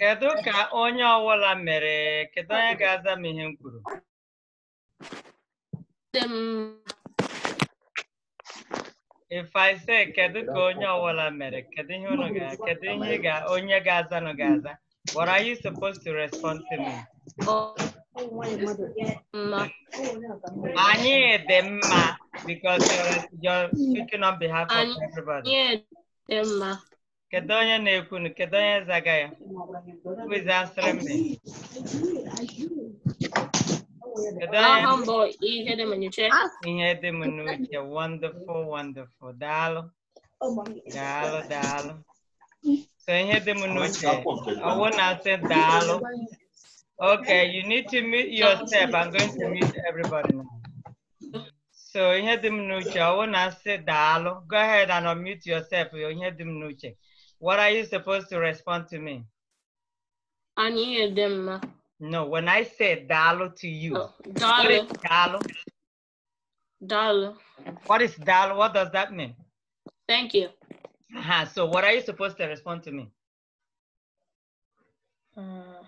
Kedu ka onye ọwụla mere? Kedu onye ga-aza m ihe m kwuru? If I say kedu ka onye ọwụla mere? Kedu ihe unu ga kedu ihe ga onye ga-aza nụ ga-aza? What are you supposed to respond to me? Anyị dị mma because you're, you're speaking on behalf of everybody. Anyị dị mma. Kedu Who's answering me? Wonderful, wonderful. Daalụ. Daalụ, daalụ. So ihe dị m I Ọwụ na-asị daalụ. Okay, you need to mute yourself. I'm going to mute everybody now. So ihe the m I wanna say daalụ. Go ahead and unmute yourself. Ihe dị the n'uche. What are you supposed to respond to me? Ani edema. No, when I say dalo to you. Oh, dalo. Dalo. Dalo. What is dalo? What does that mean? Thank you. Uh -huh. So what are you supposed to respond to me? Uh,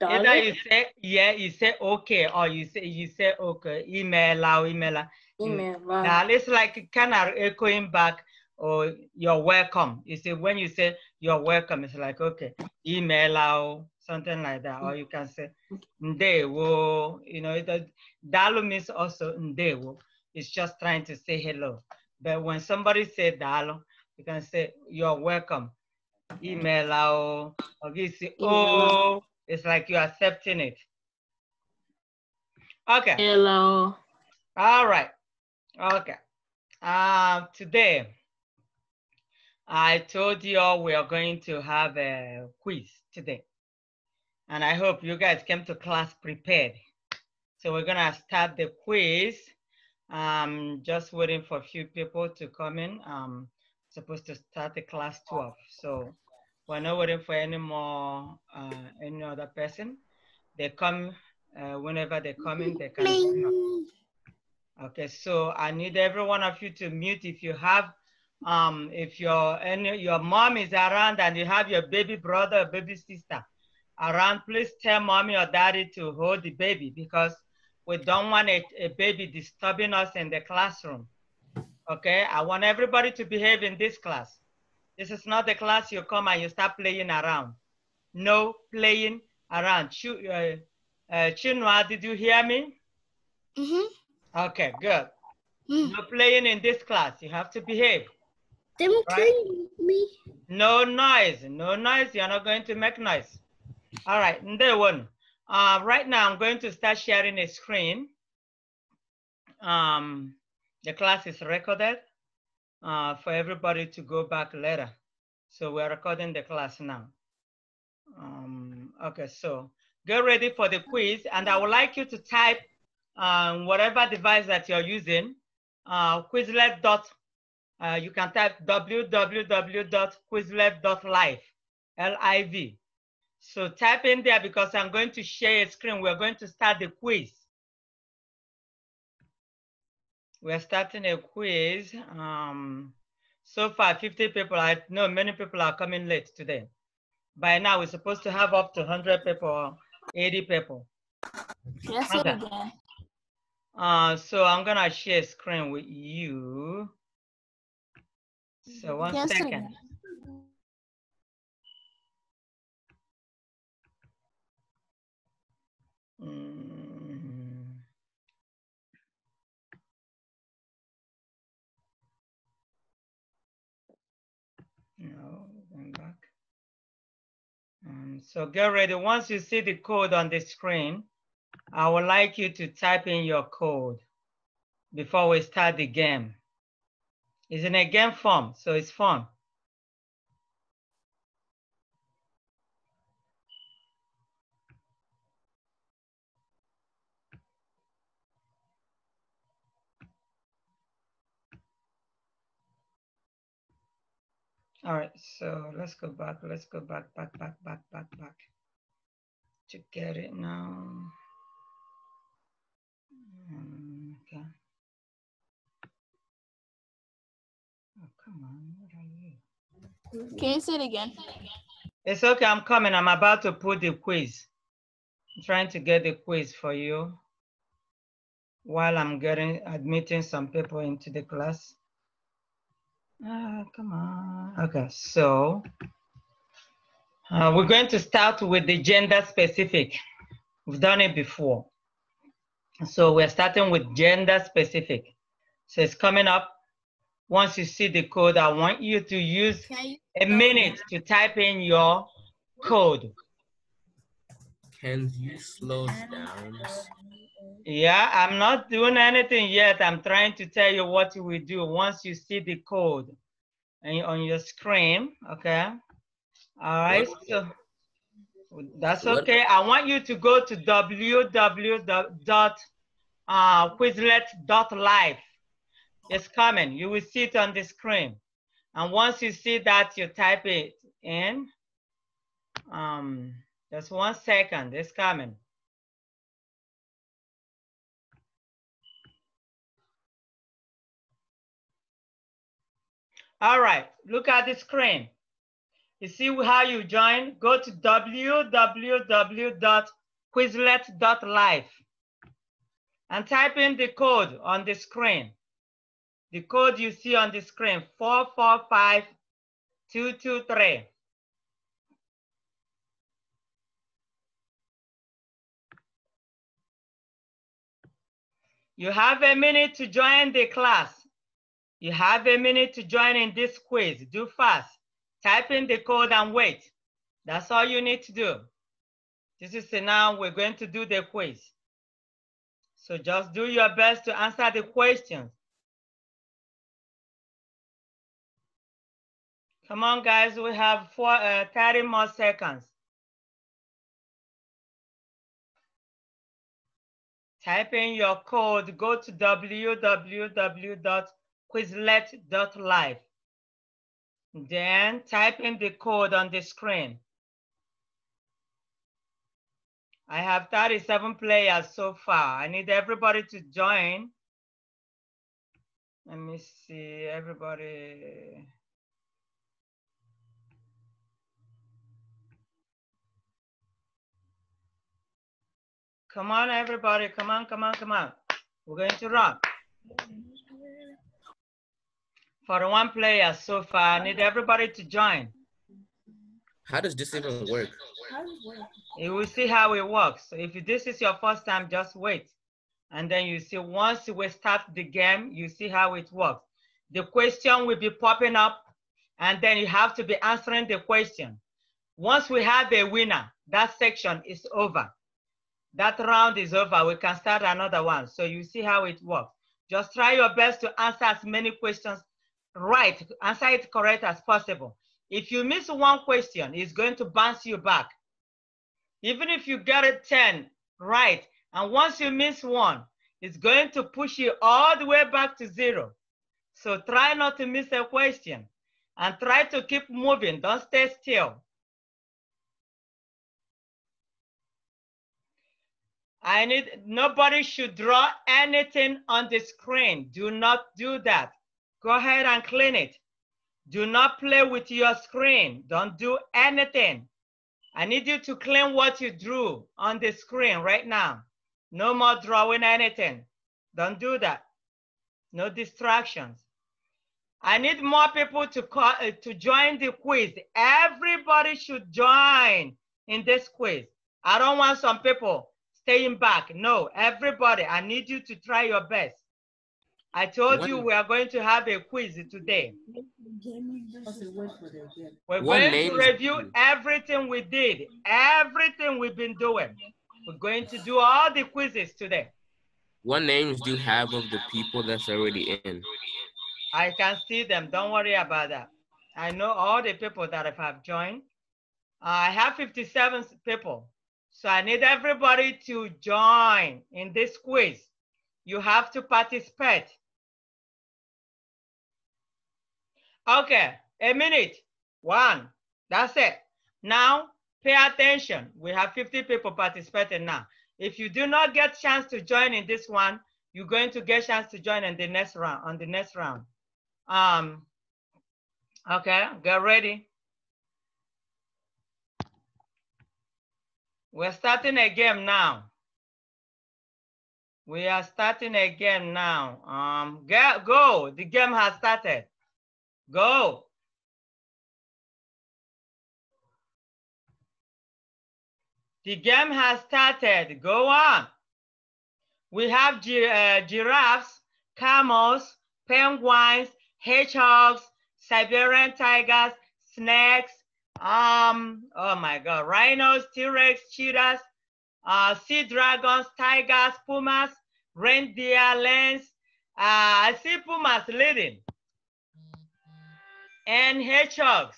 Either you say yeah, you say okay, or you say you say okay, email email Email. Wow. it's like kind of echoing back or you're welcome. You see, when you say you're welcome, it's like, okay, email out, something like that. Or you can say, ndewo, you know, it, dalu means also ndewo. It's just trying to say hello. But when somebody say dalu, you can say, you're welcome. Email out, or you say, oh, it's like you're accepting it. Okay. Hello. All right. Okay. Uh, today, I told you all we are going to have a quiz today. And I hope you guys came to class prepared. So we're gonna start the quiz. Um, just waiting for a few people to come in. Um, supposed to start the class 12. So we're not waiting for any more, uh, any other person. They come, uh, whenever they come in, they can. Okay, so I need every one of you to mute if you have um, if your and your mom is around and you have your baby brother or baby sister around, please tell mommy or daddy to hold the baby because we don't want a, a baby disturbing us in the classroom. Okay, I want everybody to behave in this class. This is not the class you come and you start playing around. No playing around. Ch uh, uh, Chinua, did you hear me? Mm -hmm. Okay, good. Mm. No playing in this class. You have to behave. Them killing um me. No noise. No noise. You're not going to make noise. All right. There one. Uh, right now, I'm going to start sharing a screen. Um, the class is recorded uh, for everybody to go back later. So we're recording the class now. Um, okay, so get ready for the quiz. And I would like you to type um, whatever device that you're using, uh, quizlet.com uh, you can type www.quizlab.live, L-I-V. So type in there because I'm going to share a screen. We're going to start the quiz. We're starting a quiz. Um, so far, 50 people, I know many people are coming late today. By now, we're supposed to have up to 100 people, 80 people. Yes, okay. Uh, so I'm gonna share screen with you. So one yes, second. Mm. Um, so get ready. Once you see the code on the screen, I would like you to type in your code before we start the game. It's in a game form, so it's fun. All right, so let's go back, let's go back, back, back, back, back, back to get it now. Mm, okay. Can you say it again? It's okay, I'm coming. I'm about to put the quiz. I'm trying to get the quiz for you while I'm getting admitting some people into the class. Ah, come on. Okay, so uh, we're going to start with the gender specific. We've done it before. So we're starting with gender specific. So it's coming up once you see the code, I want you to use a minute to type in your code. Can you slow down? Yeah, I'm not doing anything yet. I'm trying to tell you what we do once you see the code and on your screen, okay? All right, so that's okay. I want you to go to www.quizlet.live it's coming. You will see it on the screen. And once you see that, you type it in. Um, just one second, it's coming. All right, look at the screen. You see how you join? Go to www.quizlet.life and type in the code on the screen. The code you see on the screen, 445223. You have a minute to join the class. You have a minute to join in this quiz. Do fast. Type in the code and wait. That's all you need to do. This is now we're going to do the quiz. So just do your best to answer the questions. Come on, guys, we have four, uh, 30 more seconds. Type in your code, go to www.quizlet.live. Then type in the code on the screen. I have 37 players so far. I need everybody to join. Let me see, everybody. Come on, everybody. Come on, come on, come on. We're going to rock. For one player so far, I need everybody to join. How does this even work? You will see how it works. So if this is your first time, just wait. And then you see, once we start the game, you see how it works. The question will be popping up, and then you have to be answering the question. Once we have a winner, that section is over. That round is over. We can start another one. So you see how it works. Just try your best to answer as many questions right, answer it correct as possible. If you miss one question, it's going to bounce you back. Even if you get a 10 right, and once you miss one, it's going to push you all the way back to zero. So try not to miss a question and try to keep moving. Don't stay still. I need, nobody should draw anything on the screen. Do not do that. Go ahead and clean it. Do not play with your screen. Don't do anything. I need you to clean what you drew on the screen right now. No more drawing anything. Don't do that. No distractions. I need more people to, call, uh, to join the quiz. Everybody should join in this quiz. I don't want some people staying back. No, everybody, I need you to try your best. I told you we are going to have a quiz today. We're going to review everything we did, everything we've been doing. We're going to do all the quizzes today. What names do you have of the people that's already in? I can see them. Don't worry about that. I know all the people that have joined. I have 57 people so I need everybody to join in this quiz. You have to participate. Okay, a minute, one, that's it. Now, pay attention. We have 50 people participating now. If you do not get chance to join in this one, you're going to get chance to join in the next round, on the next round. Um, okay, get ready. We're starting a game now. We are starting a game now. Um, get, go. The game has started. Go. The game has started. Go on. We have gi uh, giraffes, camels, penguins, hedgehogs, Siberian tigers, snakes, um, oh my God, rhinos, T-Rex, cheetahs, uh, sea dragons, tigers, pumas, reindeer, lions. Uh, I see pumas leading. And hedgehogs.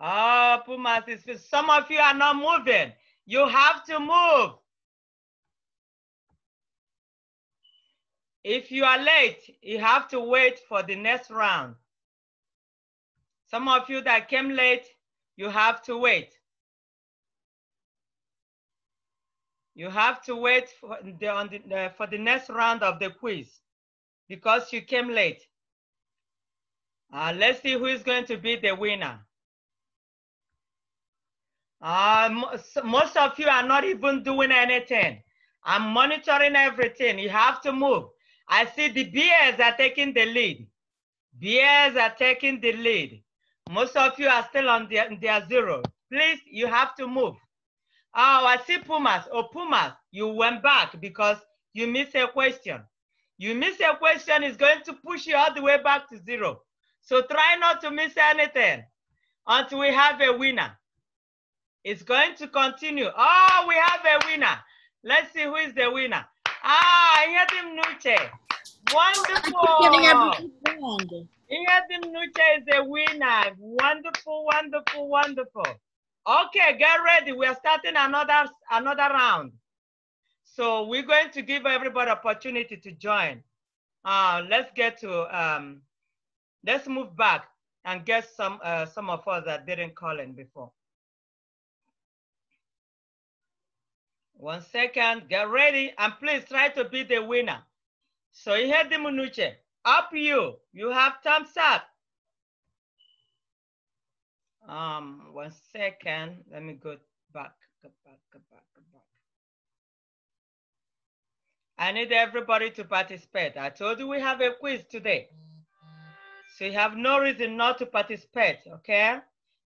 Oh, pumas, is, some of you are not moving. You have to move. If you are late, you have to wait for the next round. Some of you that came late, you have to wait. You have to wait for the, the, uh, for the next round of the quiz because you came late. Uh, let's see who is going to be the winner. Uh, most of you are not even doing anything. I'm monitoring everything. You have to move. I see the bears are taking the lead. Bears are taking the lead. Most of you are still on their, their zero. Please, you have to move. Oh, I see Pumas. Oh, Pumas, you went back because you missed a question. You miss a question is going to push you all the way back to zero. So try not to miss anything until we have a winner. It's going to continue. Oh, we have a winner. Let's see who is the winner. Ah, I hear him, Nuche. Wonderful. Ingrid Nucha is a winner. Wonderful, wonderful, wonderful. Okay, get ready. We are starting another another round. So we're going to give everybody opportunity to join. Uh, let's get to um, let's move back and get some uh, some of us that didn't call in before. One second, get ready, and please try to be the winner. So Soy the Munuche. Up you. You have thumbs up. Um, one second. Let me go back, go back, go back, go back. I need everybody to participate. I told you we have a quiz today. So you have no reason not to participate, okay?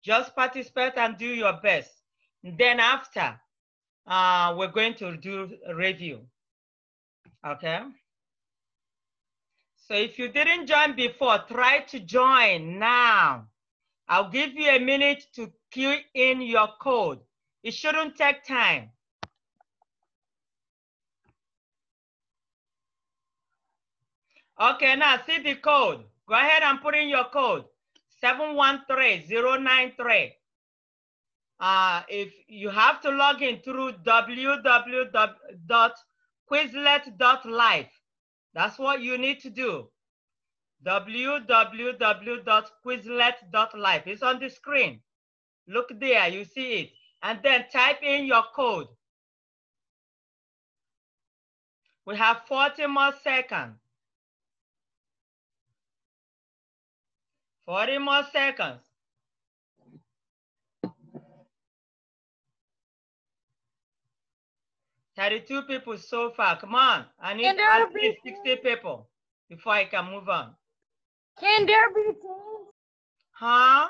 Just participate and do your best. Then after, uh, we're going to do a review, okay? So if you didn't join before, try to join now. I'll give you a minute to key in your code. It shouldn't take time. Okay, now see the code. Go ahead and put in your code, 713093. Uh, if you have to log in through www.quizlet.life, that's what you need to do. www.quizlet.life. It's on the screen. Look there, you see it. And then type in your code. We have 40 more seconds. 40 more seconds. 32 people so far. Come on. I need at least be 60 people before I can move on. Can there be teams? Huh?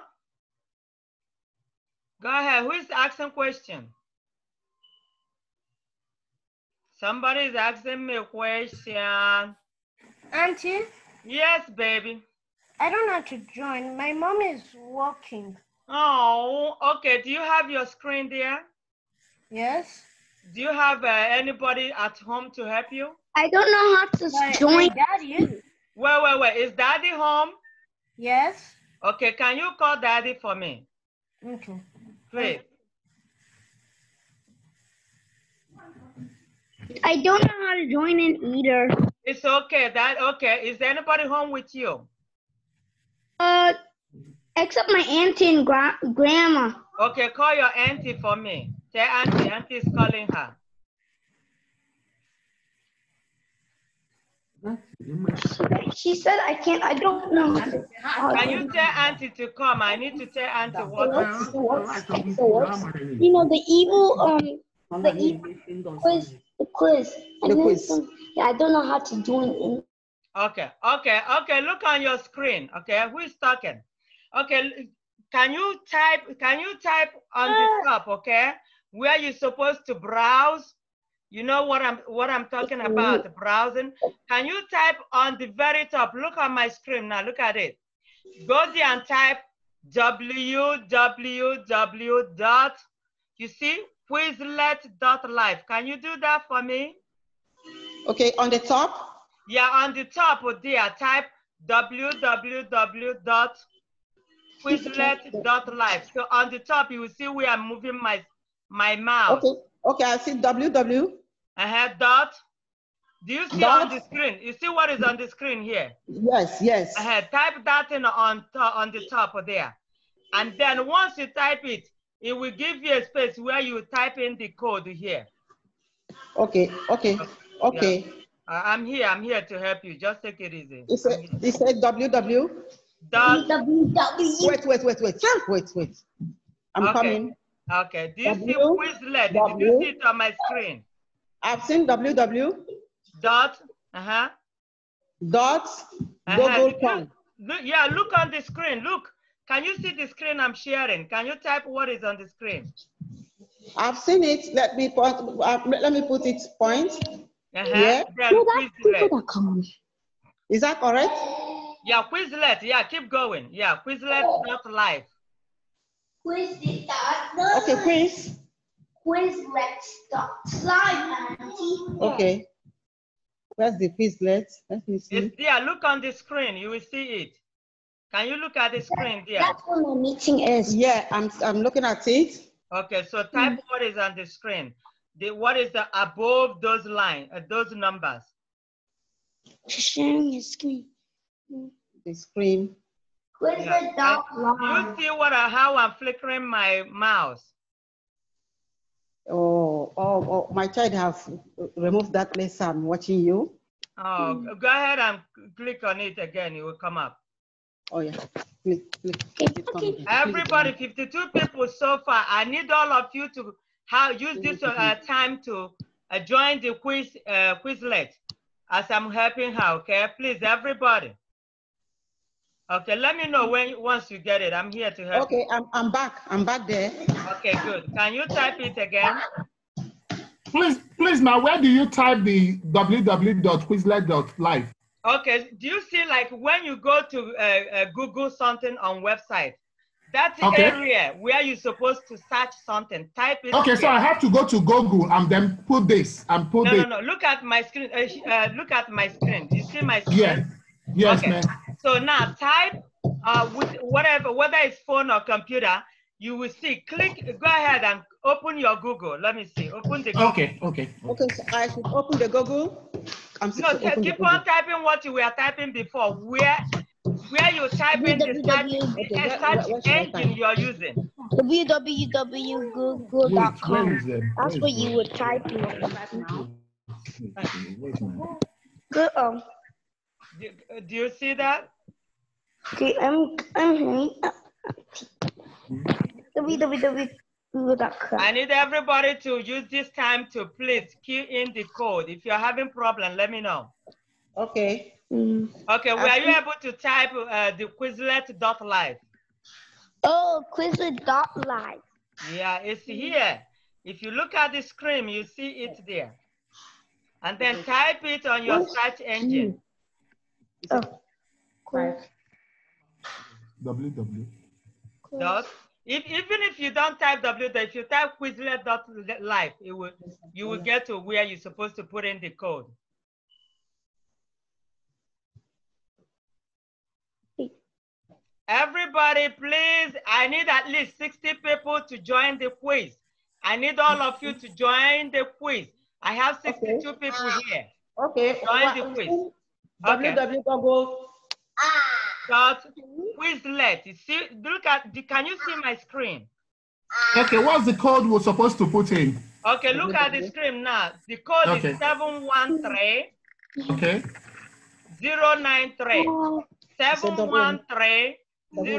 Go ahead. Who is asking question? Somebody is asking me a question. Auntie? Yes, baby. I don't know how to join. My mom is working. Oh, okay. Do you have your screen there? Yes. Do you have uh, anybody at home to help you? I don't know how to join. daddy is. Wait, wait, wait. Is daddy home? Yes. Okay, can you call daddy for me? Okay. Please. I don't know how to join in either. It's okay. That okay. Is anybody home with you? Uh, except my auntie and gra grandma. Okay, call your auntie for me. Tell Auntie, Auntie is calling her. She said, I can't, I don't know. Can you tell Auntie to come? I need to tell Auntie what. What's, you know, the evil, um, the evil quiz, the quiz. The quiz. I don't know how to do it. Okay, okay, okay. Look on your screen. Okay, who is talking? Okay, can you type, can you type on the uh, top, okay? where you're supposed to browse. You know what I'm what I'm talking mm-hmm. about, browsing. Can you type on the very top? Look at my screen now, look at it. Go there and type www dot, you see, dot life. Can you do that for me? Okay, on the top? Yeah, on the top, oh dear, type www dot dot life. So on the top, you will see where I'm moving my my mouth. Okay, okay, I see WW. I have dot. Do you see dot. on the screen? You see what is on the screen here? Yes, yes. I uh-huh, had type that in on, on the top there. And then once you type it, it will give you a space where you type in the code here. Okay, okay, okay. Yeah. Uh, I'm here, I'm here to help you. Just take it easy. It said, it said WW. Dot. Wait, wait, wait, wait, wait, wait. I'm okay. coming. Okay. Do you w, see Quizlet? W, Did you see it on my screen? I've seen www. Dot. Uh huh. Dot. Uh -huh. Yeah, look on the screen. Look. Can you see the screen I'm sharing? Can you type what is on the screen? I've seen it. Let me put, uh, let me put it point. Uh -huh. Yeah. Quizlet. Is that correct? Yeah, Quizlet. Yeah, keep going. Yeah, Quizlet. Quizlet.live. Quiz okay, quiz. Quiz let's stop slime, and. Okay. Where's the Quizlet? Let me see. It's there. Look on the screen. You will see it. Can you look at the screen there? That's what my meeting is. Yeah, I'm, I'm looking at it. Okay, so type mm. what is on the screen. The, what is the above those line, uh, those numbers? Sharing the screen. The screen. Where's yeah. the line? You see what I, uh, how I'm flickering my mouse? Oh, oh, oh, my child have removed that place. I'm watching you. Oh, mm. go ahead and click on it again. It will come up. Oh, yeah. Click, click. Okay. Everybody, 52 people so far. I need all of you to how, use this uh, time to uh, join the quiz uh, Quizlet as I'm helping her, okay? Please, everybody. Okay, let me know when once you get it. I'm here to help. Okay, I'm I'm back. I'm back there. Okay, good. Can you type it again? Please, please, now where do you type the www.quizlet.live? Okay, do you see like when you go to uh, uh, Google something on website, that okay. area where you're supposed to search something, type it. Okay, here. so I have to go to Google and then put this and put no, this. No, no, no. Look at my screen. Uh, uh, look at my screen. Do you see my screen? Yes. Yes, okay. ma'am. So now type uh, with whatever, whether it's phone or computer, you will see, click, go ahead and open your Google. Let me see, open the Google. Okay, okay. Okay, so I should open the Google. I'm no, keep on typing what you were typing before. Where where you type in the search, okay, search what, engine you're using. www.google.com. That's what you would type in right now. Good. do, do you see that? Okay, I'm I'm hearing. I need everybody to use this time to please key in the code. If you're having problem, let me know. Okay. Mm. Okay, were you able to type uh, the Quizlet.live? Oh, Quizlet.live. Yeah, it's mm. here. If you look at the screen, you see it there. And then type it on your search engine. Oh, cool www. Dot. If, even if you don't type w, if you type quizlet.life, it will you will get to where you're supposed to put in the code. Everybody, please, I need at least 60 people to join the quiz. I need all of you to join the quiz. I have 62 okay. people here. Okay. Join the quiz. Okay. www.go. Ah. But who is You see, look at, the, can you see my screen? Okay, what's the code we're supposed to put in? Okay, look at the screen now. The code okay. is 713 okay. Zero nine 713 093.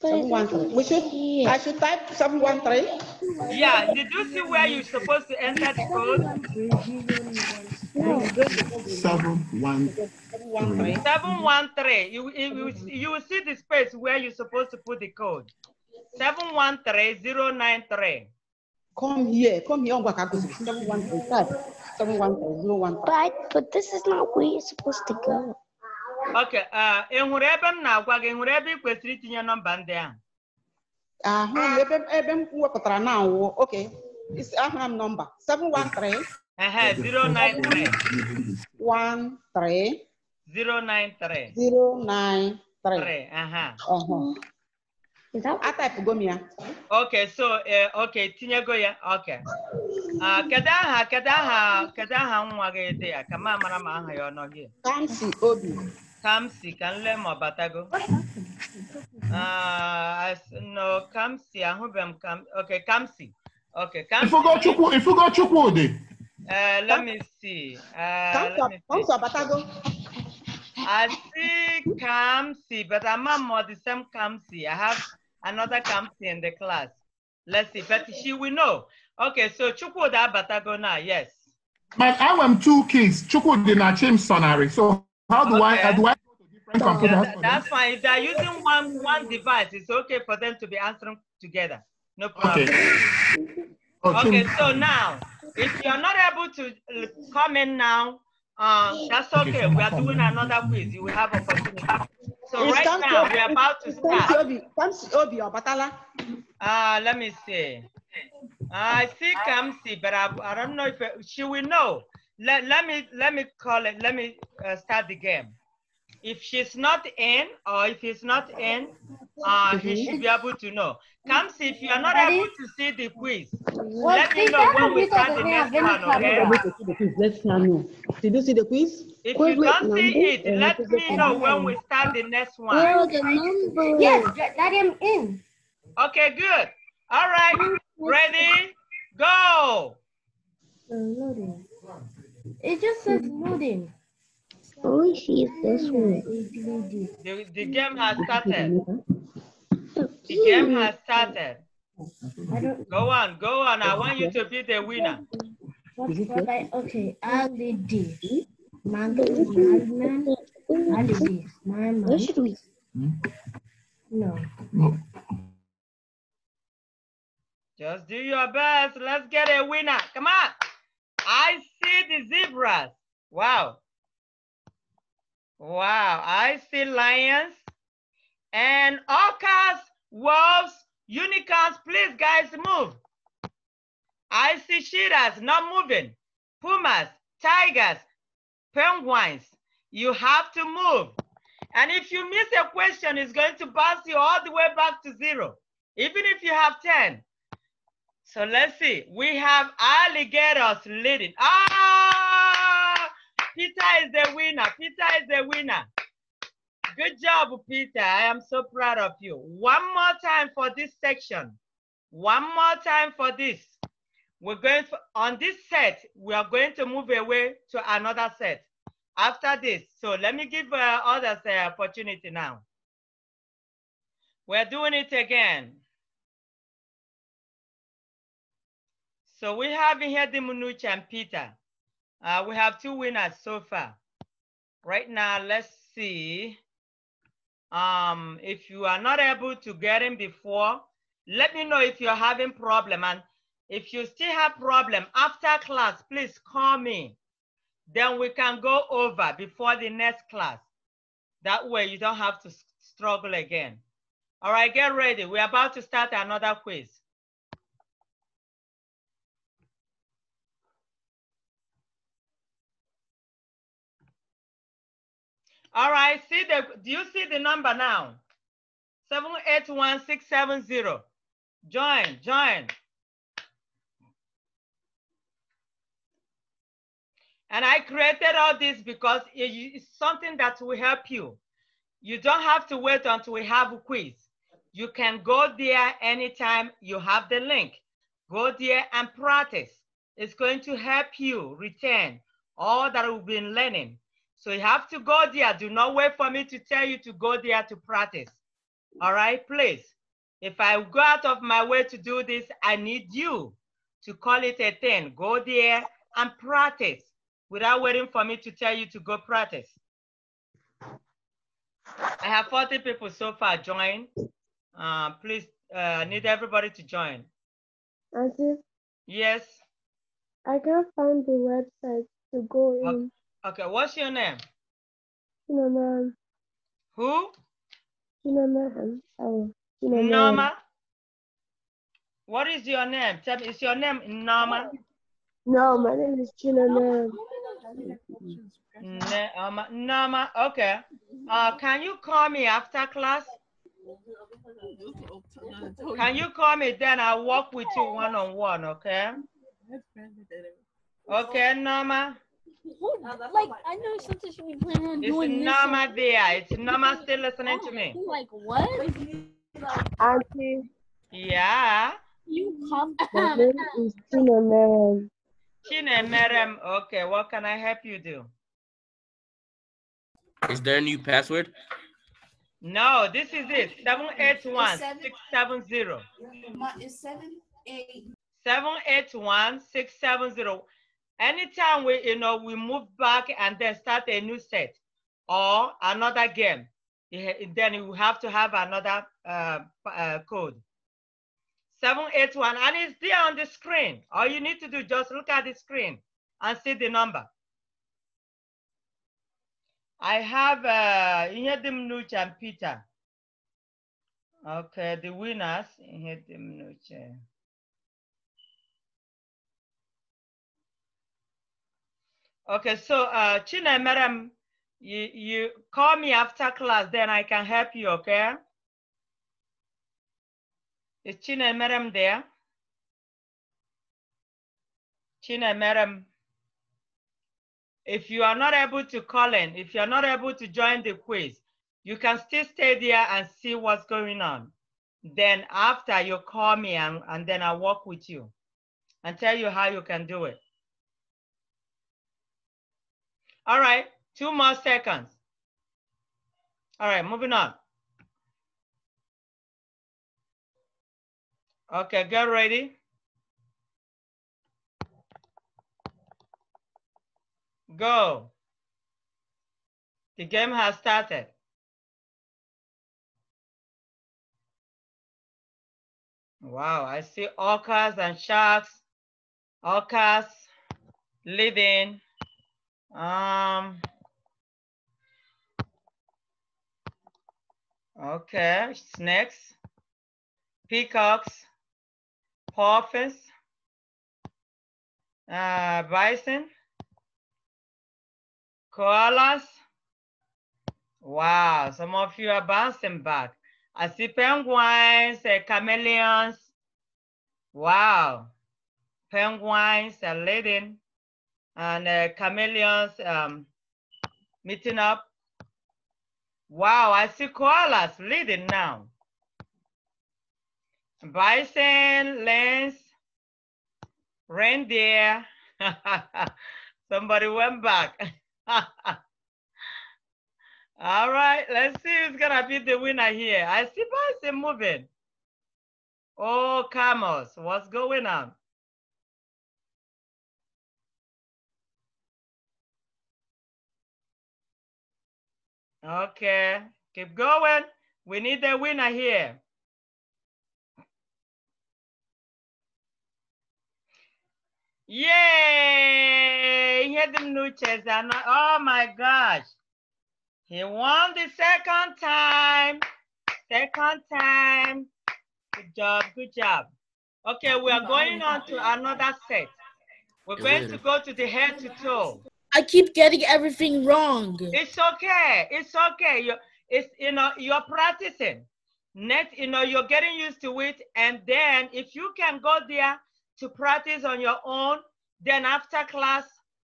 713. We should, I should type 713. Yeah, did you see where you're supposed to enter the code? Seven one three. Seven one three. You you you will see the space where you're supposed to put the code. Seven one three zero nine three. Come here, come here. Seven one three five. Seven one three zero one. But but this is not where you're supposed to go. Okay. Uh, enwere ebe m na-agwa gị enwere ebe ị kwesịrị itinye nọmba ndị ahụ. Ahụ ebe ebe m wepụtara na awụ. Okay. Ahụrụ m nọmba 713 uh 093. 1, 3. 093. 093. Aha. ya. Okay, so uh, okay, tinyego ya. Okay. Uh, ah, kedu aha kedu aha kedu aha nwa gị dị ya ka ma mara ma aha ya ọ nọ gị. Kamsi Obi. Kamsi ka nle ma ọ batago. Uh, no, Kamsi ahụbe m Okay, Kamsi. Okay, Kamsi. Ifugo Chukwu Ifugo Chukwu dị. Uh, let Come. me see. Uh, Kamsi Abatago. I see Kamsi, but I'm not more the same Kamsi. I have another Kamsi in the class. Let's see, but she will know. Okay, so Chukwuda Abatago now, yes. But I am two kids. Chukwuda change Sonari. So how do okay. I, how do I yeah, that, that's fine. If they're using one one device, it's okay for them to be answering together. No problem. Okay, okay so now if you're not able to uh, come in now, uh, that's okay. We are doing another quiz. You will have opportunity. So right now, we're about to start. Uh, let me see. I see Kamsi, but I, I don't know if she will know. Let, let me let me call it. Let me uh, start the game if she's not in or if he's not in, uh, mm-hmm. he should be able to know. Comes if you are not that able to see the quiz, well, let me know when we start the next one, okay? Let's know. Did you see the quiz? If you do not see it, let me know when we start the next one. the number. Yes, let him in. Okay, good. All right, ready, go. Loading. It just says loading. Oh, she's this one. The, game has started. The game has started. Go on, go on. I want you to be the winner. What, I, okay, holiday. Monkey, madman, no. Just do your best. Let's get a winner. Come on. I see the zebras. Wow. Wow, I see lions and orcas, wolves, unicorns. Please, guys, move. I see cheetahs not moving, pumas, tigers, penguins. You have to move. And if you miss a question, it's going to bounce you all the way back to zero, even if you have 10. So let's see. We have alligators leading. Ah! Peter is the winner. Peter is the winner. Good job, Peter. I am so proud of you. One more time for this section. One more time for this. We're going for, on this set, we are going to move away to another set after this. So let me give uh, others the opportunity now. We're doing it again. So we have here the Munuch and Peter. Uh, we have two winners so far. Right now, let's see. Um, if you are not able to get in before, let me know if you're having problem. And if you still have problem after class, please call me. Then we can go over before the next class. That way you don't have to struggle again. All right, get ready. We're about to start another quiz. All right, see the, do you see the number now? 781670. Join, join. And I created all this because it's something that will help you. You don't have to wait until we have a quiz. You can go there anytime you have the link. Go there and practice. It's going to help you retain all that we've been learning. So you have to go there. Do not wait for me to tell you to go there to practice. All right, please. If I go out of my way to do this, I need you to call it a thing. Go there and practice without waiting for me to tell you to go practice. I have 40 people so far join. Uh, please, I uh, need everybody to join. Auntie? Yes? I can't find the website to go in. Okay, what's your name? Norman. Who? Norman. Oh, Norman. What is your name? Tell me, is your name Norma? No, my name is Norma. Norma. Norma. Okay. Uh, can you call me after class? Can you call me then? I'll walk with you one on one, okay? Okay, Norma like, I know something should be planning on it's doing this. It's my there. It's Still listening to oh, me. Like, what? Auntie. Yeah. You come. My name is Chinemerem. Chinemerem. Okay, what can I help you do? Is there a new password? No, this is it. 781 670. It's 781 670. Anytime we, you know, we move back and then start a new set or another game, eh, then you have to have another uh, uh, code. 781, and it's there on the screen. All you need to do, just look at the screen and see the number. I have uh, Inhedim Nuch and Peter. Okay, the winners, Inhedim Nuch. Okay, so uh, Chine, madam, you, you call me after class, then I can help you, okay? Is Chine, madam there? Chine, madam, if you are not able to call in, if you are not able to join the quiz, you can still stay there and see what's going on. Then after you call me and, and then I work with you and tell you how you can do it. All right, two more seconds. All right, moving on. Okay, get ready. Go. The game has started. Wow, I see orcas and sharks, orcas living um, okay, snakes, peacocks, puffins, uh, bison, koalas. Wow, some of you are bouncing back. I see penguins, uh, chameleons. Wow, penguins are leading and uh, chameleons um, meeting up. Wow, I see koalas leading now. Bison, lens, reindeer. Somebody went back. All right, let's see who's gonna be the winner here. I see bison moving. Oh, camels, what's going on? Okay, keep going. We need the winner here. Yay! He the new Oh my gosh. He won the second time. Second time. Good job. Good job. Okay, we are going on to another set. We're going to go to the head to toe. I keep getting everything wrong. It's okay. It's okay. You it's you know you're practicing. Next, you know you're getting used to it, and then if you can go there to practice on your own, then after class,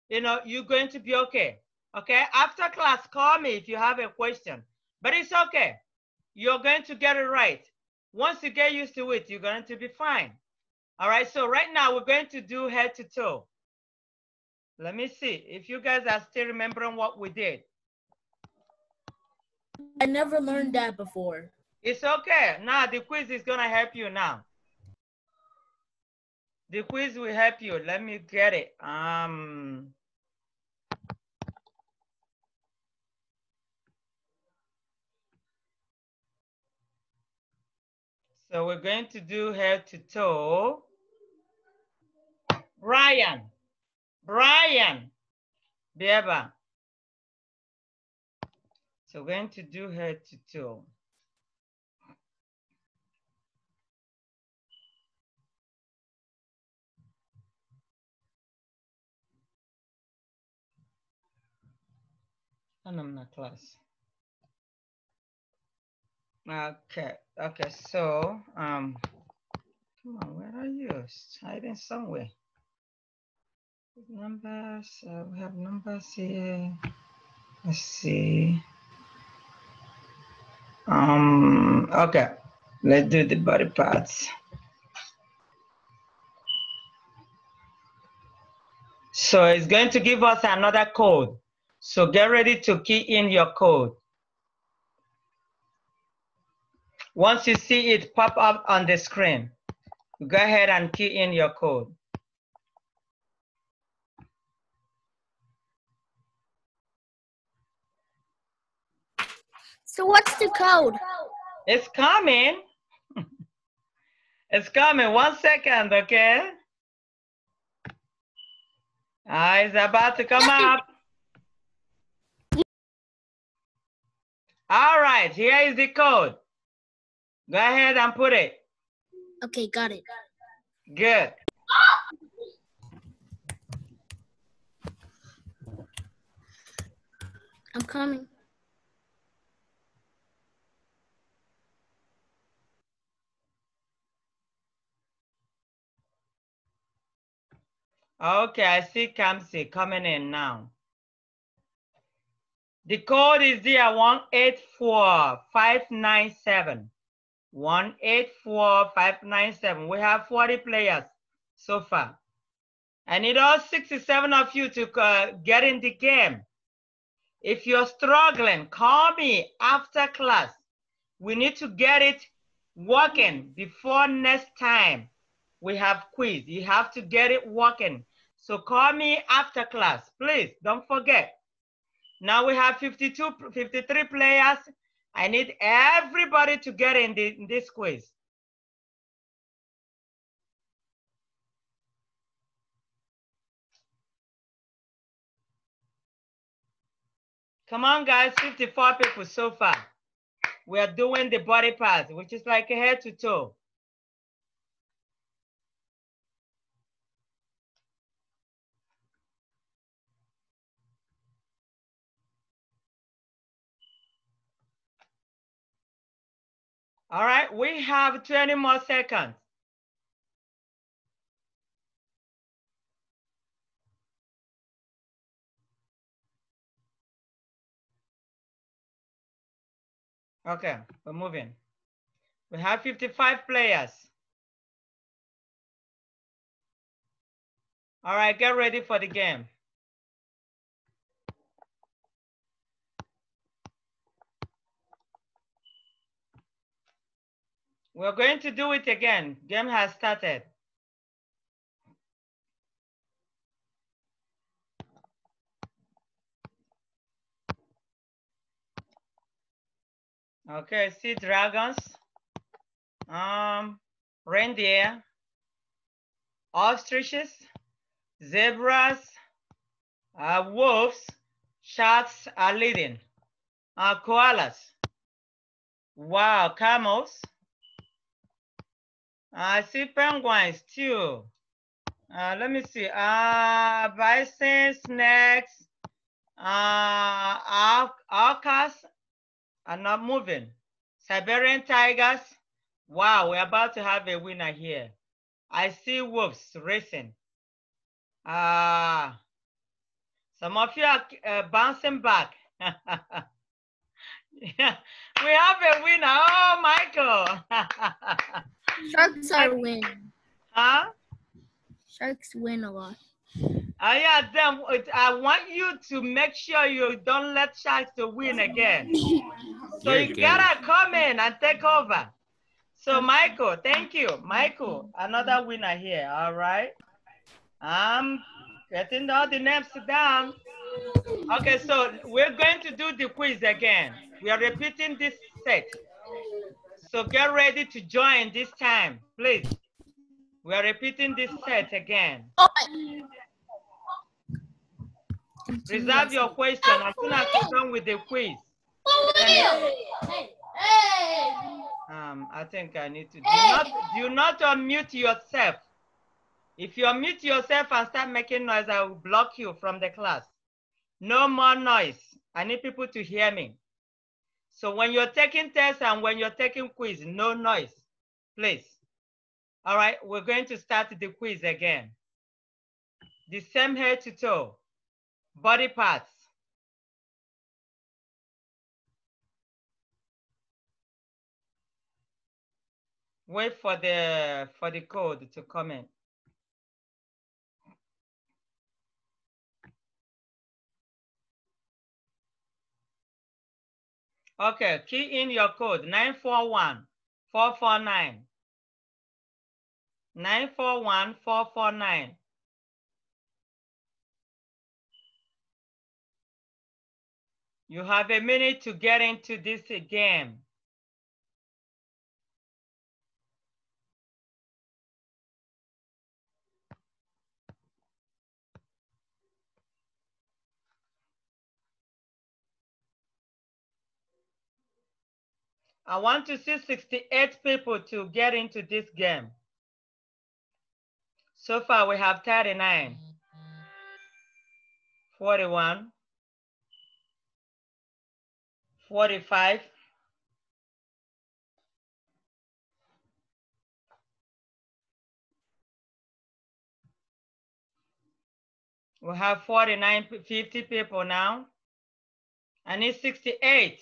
you know you're going to be okay. Okay. After class, call me if you have a question. But it's okay. You're going to get it right. Once you get used to it, you're going to be fine. All right. So right now we're going to do head to toe. Let me see if you guys are still remembering what we did. I never learned that before. It's okay. Now the quiz is gonna help you now. The quiz will help you. Let me get it. Um, so we're going to do head to toe. Ryan. Brian Beba, So we're going to do her tutorial. and I'm not class. Okay, okay, so um come on, where are you? It's hiding somewhere. Numbers, uh, we have numbers here. Let's see. Um, okay, let's do the body parts. So it's going to give us another code. So get ready to key in your code. Once you see it pop up on the screen, go ahead and key in your code. So what's the code? It's coming. it's coming. One second, okay? Ah, it's about to come up. All right, here is the code. Go ahead and put it. Okay, got it. Good. I'm coming. Okay, I see Kamsi coming in now. The code is there, 184597. 184597. We have 40 players so far. I need all 67 of you to uh, get in the game. If you're struggling, call me after class. We need to get it working before next time we have quiz. You have to get it working so call me after class, please. Don't forget. Now we have 52, 53 players. I need everybody to get in, the, in this quiz. Come on, guys, 54 people so far. We are doing the body part, which is like a head to toe. All right, we have 20 more seconds. Okay, we're moving. We have 55 players. All right, get ready for the game. We're going to do it again. Game has started. Okay, see dragons, um, reindeer, ostriches, zebras, uh, wolves, sharks are leading, uh, koalas, wow, camels, I see penguins too. Uh, let me see. Uh, bison, snakes, uh, ah, al alcas are not moving. Siberian tigers. Wow, we're about to have a winner here. I see wolves racing. Uh, some of you are uh, bouncing back. yeah, we have a winner. Oh, Michael. Sharks are win. Huh? Sharks win a lot. Oh yeah, then I want you to make sure you don't let sharks to win again. so you good. gotta come in and take over. So Michael, thank you. Michael, another winner here, all right? I'm getting all the names down. Okay, so we're going to do the quiz again. We are repeating this set. So get ready to join this time, please. We are repeating this set again. Reserve your question as soon as you're done with the quiz. Um, I think I need to do not do not unmute yourself. If you unmute yourself and start making noise, I will block you from the class. No more noise. I need people to hear me. So when you're taking tests and when you're taking quiz, no noise, please. All right, we're going to start the quiz again. The same head to toe, body parts. Wait for the, for the code to come in. Okay, key in your code 941 449. 941 449. You have a minute to get into this game. I want to see 68 people to get into this game. So far we have 39, 41, 45, we have 49, 50 people now. I need 68.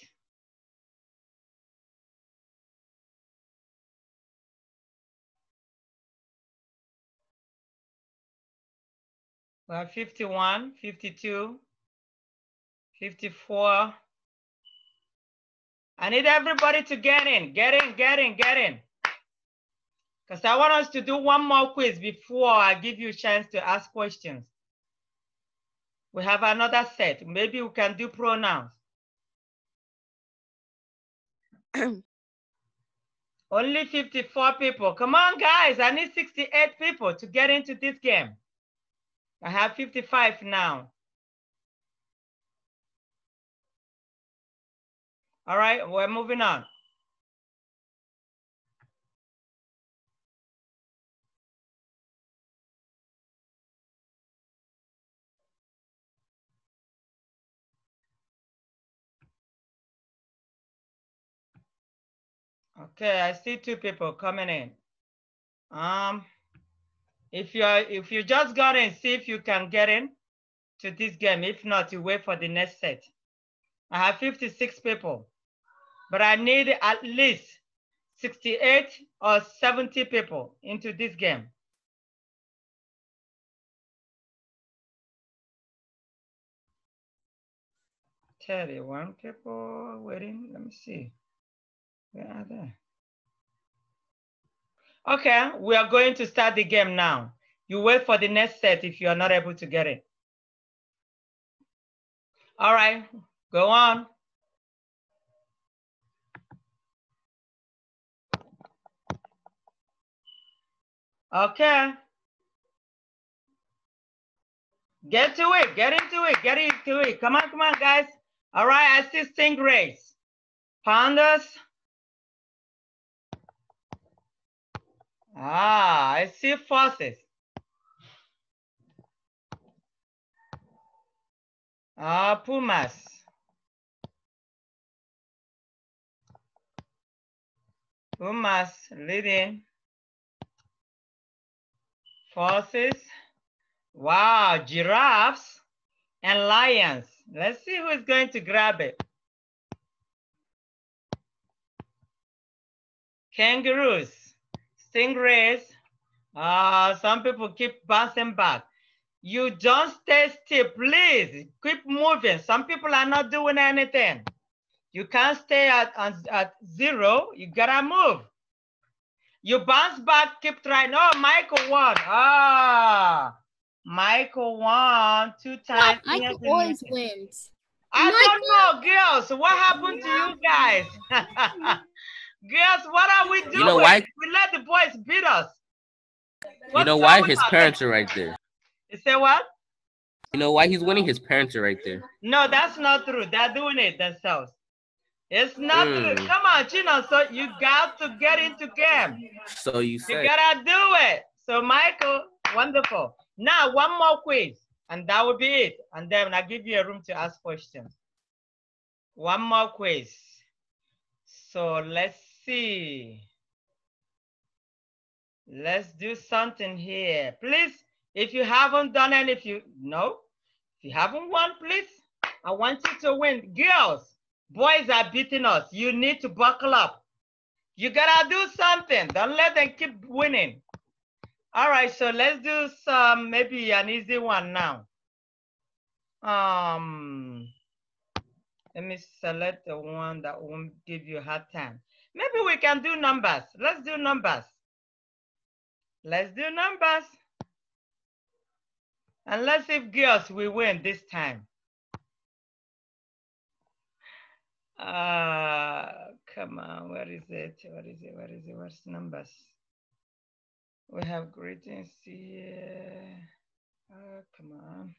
We have 51, 52, 54. I need everybody to get in, get in, get in, get in. Because I want us to do one more quiz before I give you a chance to ask questions. We have another set. Maybe we can do pronouns. Only 54 people. Come on, guys. I need 68 people to get into this game. I have 55 now. All right, we're moving on. Okay, I see two people coming in. Um, if you are, if you just got in, see if you can get in to this game. If not, you wait for the next set. I have 56 people, but I need at least 68 or 70 people into this game. Thirty-one people waiting. Let me see. Where are they? Okay, we are going to start the game now. You wait for the next set if you are not able to get it. All right, go on. Okay. Get to it, get into it, get into it. Come on, come on, guys. All right, assisting grace. pandas, Ah, I see forces. Ah, pumas. Pumas leading. forces. Wow, giraffes and lions. Let's see who's going to grab it. Kangaroos stingrays. Uh, some people keep bouncing back. You don't stay still, please. Keep moving. Some people are not doing anything. You can't stay at, at, at zero. You gotta move. You bounce back, keep trying. Oh, Michael won. Ah, Michael won two times. Yeah, Michael yes, always wins. I Michael. don't know, girls. What happened yeah. to you guys? Girls, what are we doing? You know why? We let the boys beat us. What's you know why? His parents that? are right there. You say what? You know why he's winning? His parents are right there. No, that's not true. They're doing it themselves. It's not mm. true. Come on, Chino. So you got to get into game. So you say. You gotta do it. So Michael, wonderful. Now one more quiz, and that will be it. And then I give you a room to ask questions. One more quiz. So let's see. Let's do something here. Please, if you haven't done it, if you, no, if you haven't won, please, I want you to win. Girls, boys are beating us. You need to buckle up. You gotta do something. Don't let them keep winning. All right, so let's do some, maybe an easy one now. Um, let me select the one that won't give you hard time. Maybe we can do numbers. Let's do numbers. Let's do numbers. And let's see if girls we win this time. Uh, come on, where is it? Where is it? Where is it? Where's numbers? We have greetings here. ah, come on.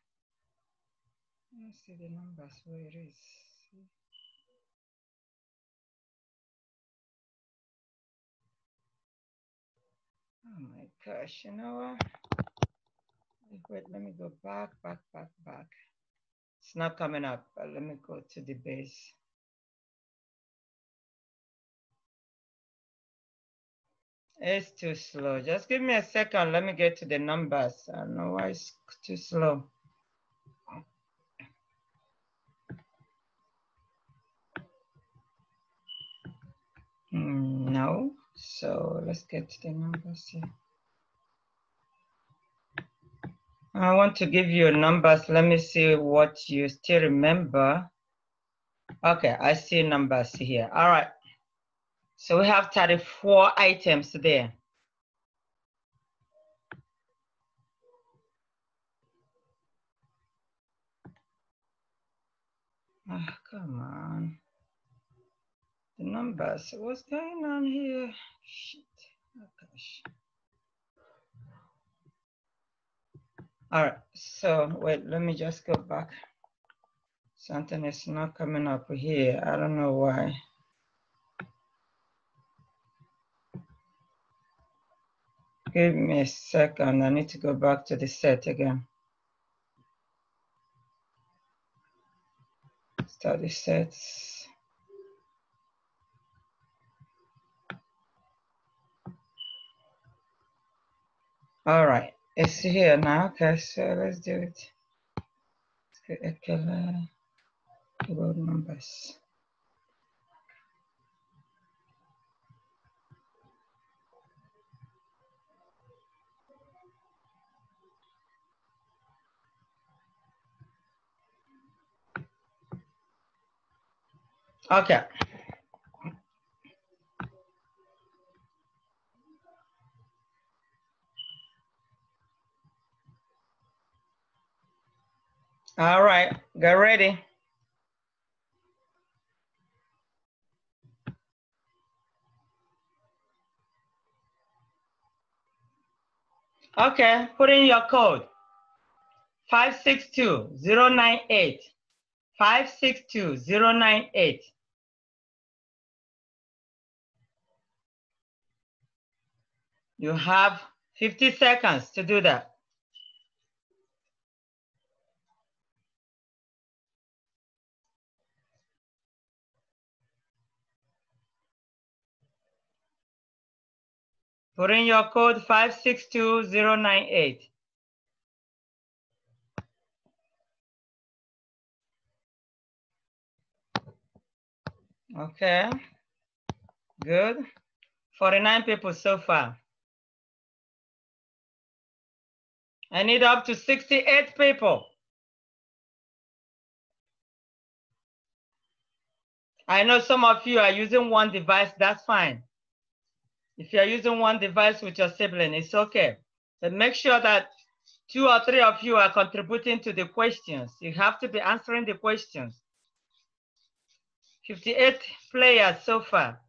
Let's see the numbers, where it is. gosh, you know Wait, let me go back, back, back, back. It's not coming up, but let me go to the base. It's too slow. Just give me a second. Let me get to the numbers. I know why it's too slow. Mm, no. So let's get to the numbers here. I want to give you numbers. Let me see what you still remember. Okay, I see numbers here. All right. So we have 34 items there. Oh, come on. The numbers, what's going on here? Shit, oh gosh. All right, so wait, let me just go back. Something is not coming up here. I don't know why. Give me a second. I need to go back to the set again. Study sets. All right. It's here now. Okay, so let's do it. Let's get a color road numbers. Okay. All right, get ready. Okay, put in your code. 562-098. 562-098. You have 50 seconds to do that. Put in your code 562098. Okay, good. 49 people so far. I need up to 68 people. I know some of you are using one device, that's fine. If you're using one device with your sibling, it's okay. But make sure that two or three of you are contributing to the questions. You have to be answering the questions. 58 players so far.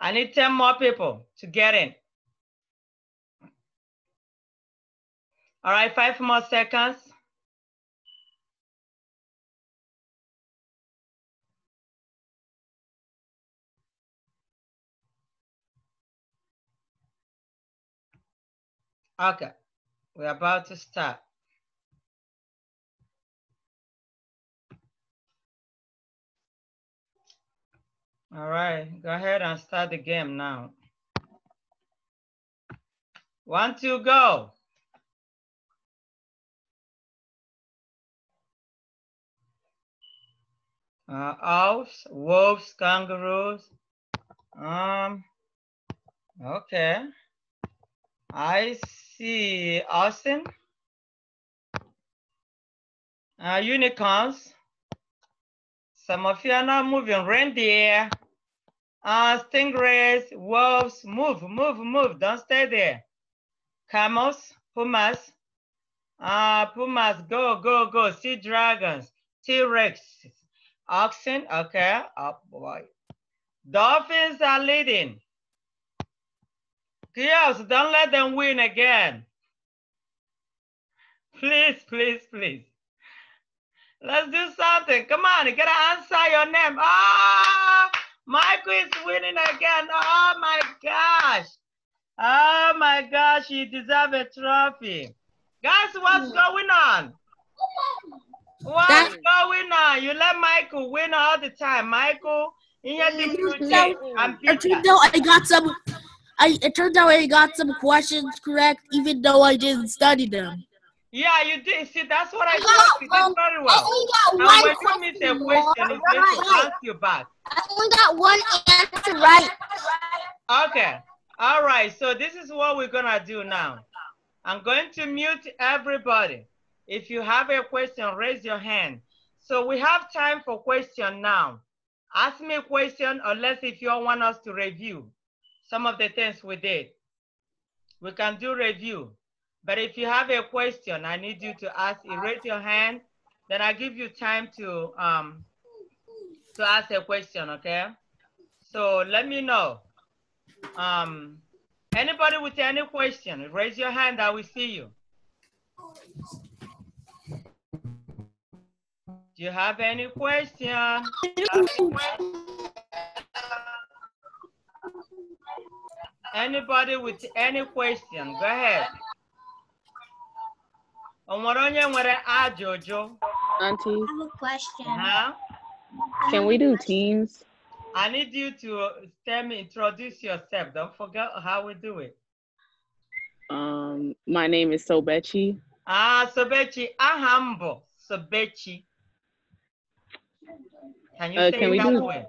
I need 10 more people to get in. All right, five more seconds. Okay, we're about to start. All right, go ahead and start the game now. One, two, go. Uh, owls, wolves, kangaroos. Um, okay. I see, Austin. Uh, unicorns. Some of you are not moving. Reindeer, uh, stingrays, wolves. Move, move, move. Don't stay there. Camels, pumas. Uh, pumas, go, go, go. Sea dragons, T-Rex, oxen. Okay. Oh, boy. Dolphins are leading. Yes! don't let them win again. Please, please, please. Let's do something. Come on, you gotta answer your name. Ah, oh, Michael is winning again. Oh my gosh. Oh my gosh, you deserve a trophy. Guys, what's hmm. going on? What's going on? You let Michael win all the time. Michael, in your mm, team, I'm I got some I it turned out I got some questions correct, even though I didn't study them. Yeah, you did. See, that's what I got, thought. You um, did very well. I only got one when you a question, it's right. to ask you back. I only got one answer right. Okay. All right. So this is what we're going to do now. I'm going to mute everybody. If you have a question, raise your hand. So we have time for question now. Ask me a question, unless if you want us to review some of the things we did. We can do review, but if you have a question, I need you to ask, raise your hand, then I give you time to, um, to ask a question, okay? So let me know. Um, anybody with any question, raise your hand, I will see you. Do you have any question? Have any question? anybody with any question, go ahead. Auntie. I have a question. Huh? Can we do teams? I need you to tell me, introduce yourself. Don't forget how we do it. Um, my name is Sobechi. Ah, Sobechi. Ahambo. Sobechi. Can you uh, say can we that do, way?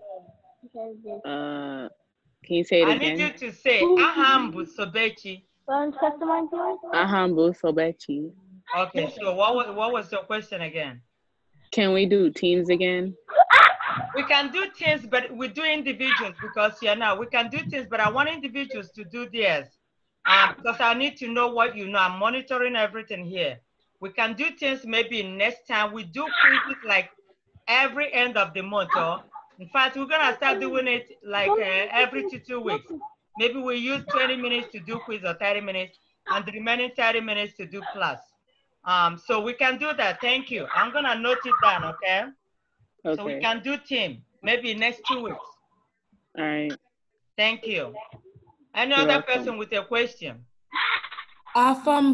Uh, can you say it I again? I need you to say Ahambu Sobechi. Ahambu Sobechi. Okay, so what was, what was your question again? Can we do teams again? We can do teams, but we do individuals because you yeah, know we can do teams, but I want individuals to do theirs um, because I need to know what you know. I'm monitoring everything here. We can do things maybe next time. We do quizzes like every end of the month, or in fact, we're gonna start doing it like uh, every two, two weeks. Maybe we use 20 minutes to do quiz or 30 minutes and the remaining 30 minutes to do class. Um, so we can do that, thank you. I'm gonna note it down, okay? okay? So we can do team, maybe next two weeks. All right. Thank you. Any other person with a question? Uh, Have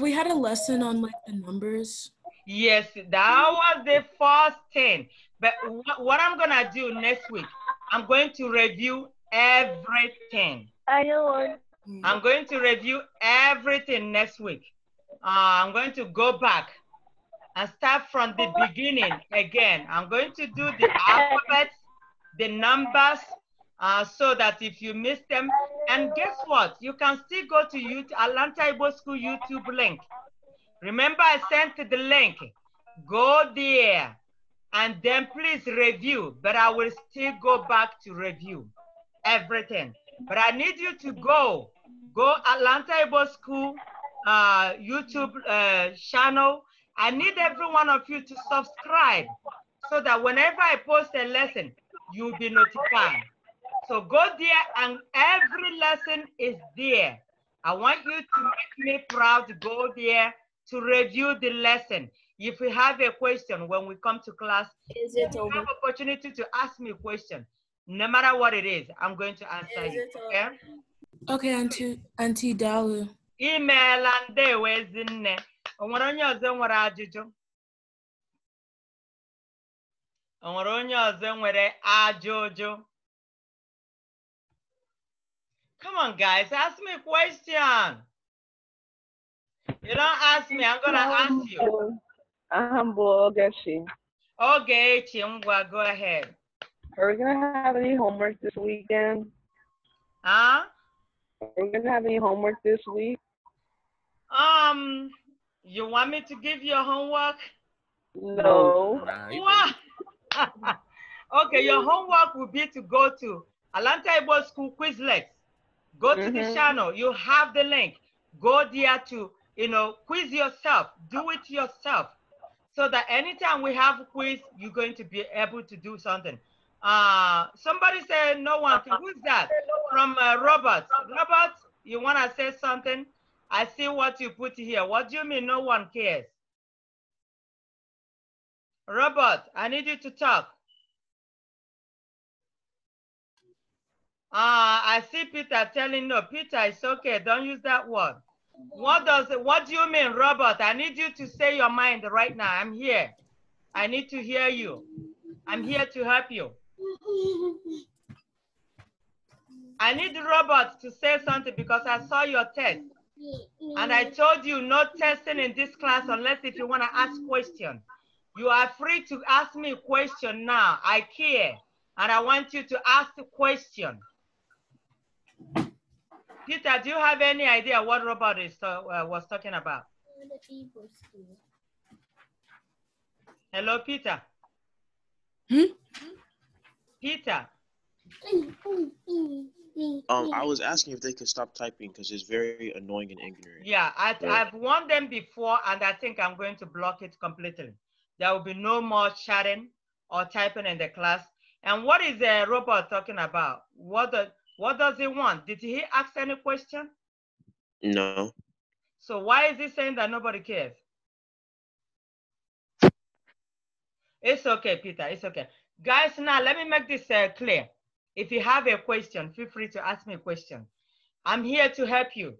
we had a lesson on like the numbers? Yes, that was the first thing. But what I'm gonna do next week, I'm going to review everything. I know. Mm. I'm going to review everything next week. Uh, I'm going to go back and start from the beginning again. I'm going to do the alphabet, the numbers, uh, so that if you miss them, and guess what? You can still go to YouTube, Atlanta Ibo School YouTube link Remember, I sent the link. Go there and then please review, but I will still go back to review everything. But I need you to go, go Atlanta Able School uh, YouTube uh, channel. I need every one of you to subscribe so that whenever I post a lesson, you'll be notified. So go there and every lesson is there. I want you to make me proud. Go there to review the lesson. If you have a question when we come to class, is it over? have opportunity to ask me a question. No matter what it is, I'm going to answer is you. Okay? okay, Auntie, Auntie Dalu. Email and they was in there. onwere onye ọzọ nwere ajụjụ onwere onye ọzọ nwere ajụjụ come on guys ask me question you don't ask me, I'm gonna um, ask you. Ahambo uh-huh, Ogechi. Okay, Mwa, go ahead. Are we gonna have any homework this weekend? Huh? Are we gonna have any homework this week? Um, you want me to give you homework? No. What? okay, your homework will be to go to Atlanta Igbo School Quizlet. Go to mm -hmm. the mm-hmm. channel. You have the link. Go there to you know, quiz yourself, do it yourself. So that anytime we have a quiz, you're going to be able to do something. Uh, somebody said no one. Who's that? From uh, Robert. Robert, you want to say something? I see what you put here. What do you mean no one cares? Robert, I need you to talk. Uh, I see Peter telling no. Peter, it's okay. Don't use that word. What does what do you mean, Robert? I need you to say your mind right now. I'm here. I need to hear you. I'm here to help you. I need Robert to say something because I saw your test. And I told you no testing in this class unless if you want to ask question. You are free to ask me a question now. I care. And I want you to ask the question. Peter, do you have any idea what Robert is, uh, was talking about? Hello, Peter. Hmm? Peter. Um, I was asking if they could stop typing because it's very annoying and ignorant. Yeah, I, yeah. I've warned them before, and I think I'm going to block it completely. There will be no more chatting or typing in the class. And what is the robot talking about? What the, what does he want? Did he ask any question? No. So why is he saying that nobody cares? It's okay, Peter. It's okay. Guys, now let me make this uh, clear. If you have a question, feel free to ask me a question. I'm here to help you.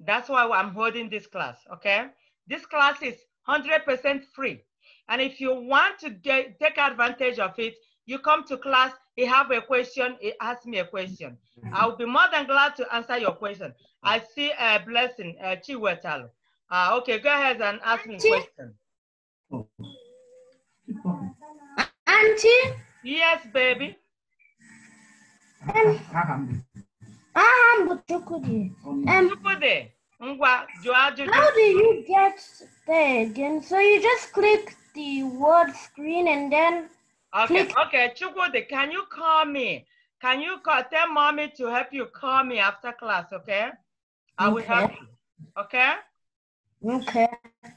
That's why I'm holding this class, okay? This class is 100% free. And if you want to get, take advantage of it, you come to class he have a question, he asked me a question. Mm-hmm. I'll be more than glad to answer your question. Mm-hmm. I see a blessing, uh, Chiwetal. Uh, ah, okay, go ahead and ask Auntie? me a question. Oh. Auntie? Yes, baby. Ah, ah, um, um, how do you get there again? So you just click the word screen and then Okay, Please. okay, Chukwudi, can you call me? Can you call, tell mommy to help you call me after class, okay? I will help you, okay? Okay.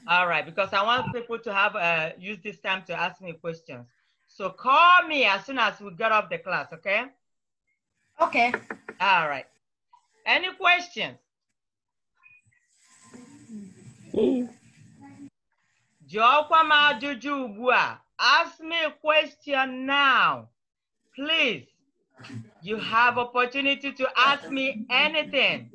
All right, because I want people to have, uh, use this time to ask me questions. So call me as soon as we get off the class, okay? Okay. All right. Any questions? Mm. Joko ma juju bua. Ask me a question now, please. You have opportunity to ask me anything.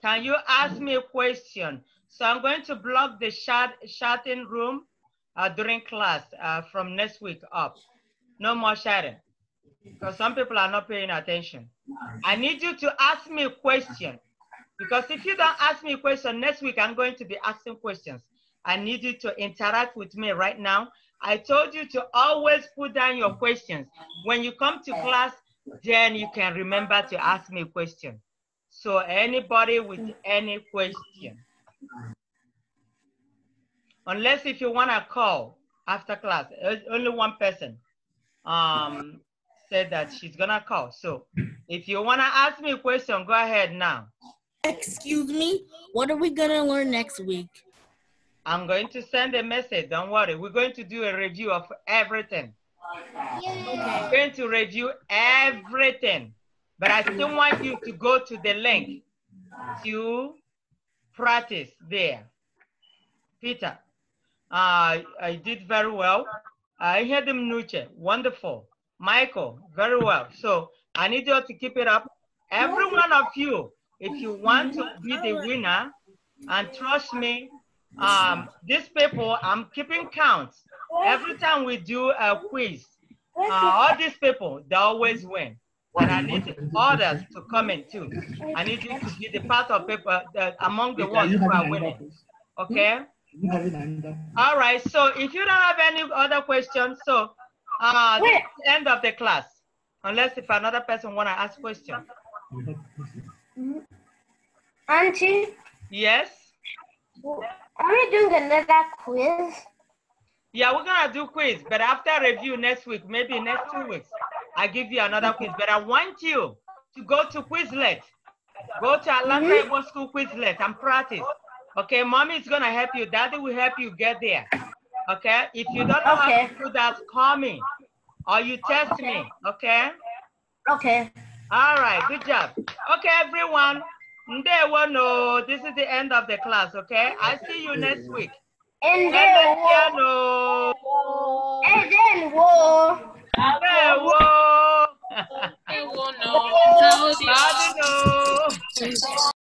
Can you ask me a question? So I'm going to block the chat, in room uh, during class uh, from next week up. No more chatting because some people are not paying attention. I need you to ask me a question. Because if you don't ask me a question next week, I'm going to be asking questions. I need you to interact with me right now. I told you to always put down your questions. When you come to class, then you can remember to ask me a question. So anybody with any question. Unless if you wanna call after class, only one person um, said that she's gonna call. So if you wanna ask me a question, go ahead now. Excuse me? What are we going to learn next week? I'm going to send a message. Don't worry. We're going to do a review of everything. Okay. we going to review everything. But I still want you to go to the link to practice there. Peter, uh, I did very well. I heard him, Nuche. Wonderful. Michael, very well. So I need you to keep it up. Every one of you if you want to be the winner, and trust me, um, these people, I'm keeping count. Every time we do a quiz, uh, all these people, they always win. But I need others to comment too. I need you to be the part of people that among the ones who are winning. Okay? All right. So if you don't have any other questions, so uh, end of the class, unless if another person want to ask question. Mm-hmm. Auntie? Yes? Are we doing another quiz? Yeah, we're gonna do quiz, but after review next week, maybe next two weeks, I give you another quiz. But I want you to go to Quizlet. Go to Atlanta mm -hmm. School Quizlet and practice. Okay, mommy is gonna help you. Daddy will help you get there. Okay, if you don't know okay. how to do that, call me or you text okay. me. Okay. Okay. All right, good job. Okay, everyone. Ndewano, this is the end of the class, okay? I see you next week. Ndewano. Ndewano. Ndewano. Ndewano. Ndewano.